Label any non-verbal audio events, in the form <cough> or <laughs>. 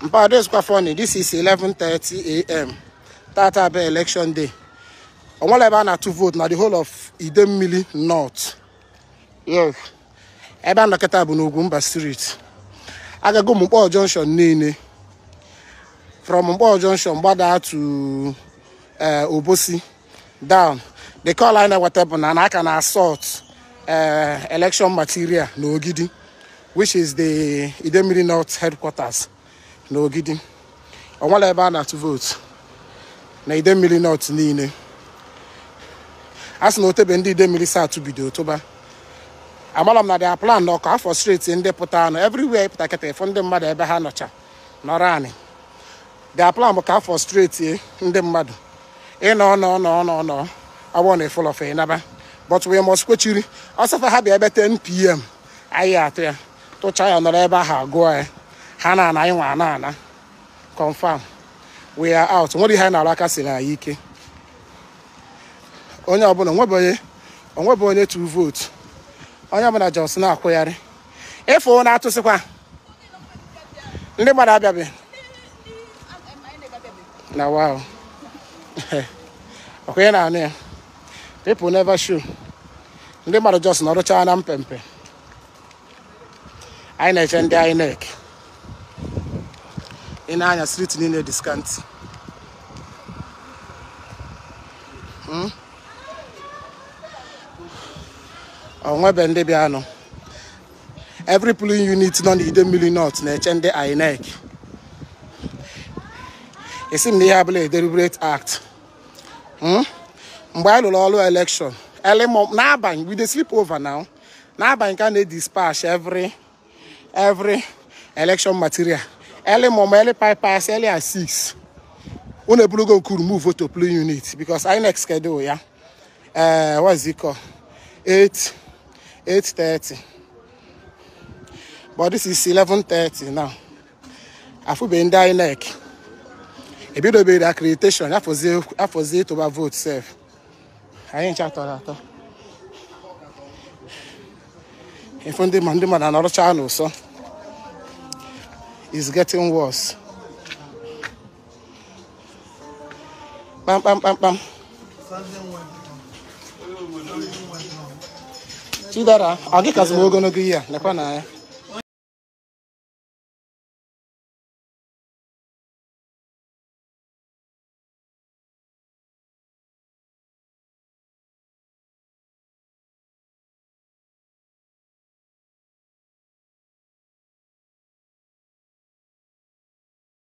But this is funny. This is 11:30 a.m. Tata be election day. On one level, na two vote. Now the whole of Idemili North. Yes. Ebe anọkịta bụ n'Ugwumba Street. Agago Mkpọọ Junction niile. From Mkpọọ Junction gbadaa to eh, Obosi down. The call line whatever na aka na assault eh, election material n'Ogidi, which is the Idemili North headquarters. na Ogidi ọnwala ebe a na-atụ vootu na idemmiri nọt niile a sị na otebe ndị idemmiri satụ bido tụba amara m na dia plan na ọkụ afọ streti ndị pụta anụ everywhere pụta kịta ịfụ ndị mmadụ ebe ha nọcha nọrọ anị dia plan bụ ka afọ streti ndị mmadụ ịnọ nọ nọ nọ nọ ọgbọ na ịfụlọfe ịnaba but we must kwechiri ọsọfa ha bịa ebe 10 pm anyị atụ ya tụchaa ya nọrọ ebe ahụ agụọ ya ha na-ana anyị nwa ana ana confam we are out nwere ihe anyị na-arụ aka si na anyị ike onye ọbụla onwebụ onye tu vootu onye ọbụla jos na-akwụgharị ịfụ na-atụsịkwa ndị gbara abịabịa na wow <laughs> ọkwenye na anụ ya people never show ndị mmadụ jos nọrụchaa na mpempe anyị na-eche ndị INEC ị na-anya street niile diskantị hmm? nwebe ndị bịanụ every polling unit nọ n'ide mmiri north na-eche ndị INEC esi m na ihe abụla deliberate act hmm? mgbe anyị lụrụ ọrụ election early n'abalị we slip sleep over now n'abalị ka na-edispatch every every election material early mom early bypass early at 6 unu eburugo nkuru move to play unit because inec schedule ya uh, is it called 8 8:30 but this is 11:30 now afụbeghị ndị inec ebidobere accreditation afọzie ịtụba vote sef anyị ncha tọrọ atọ ifu is getting worse. bam bam. pam, pam. Chidera, I'll get kasị m ogologo ihe a, lekwa na ya. Eh?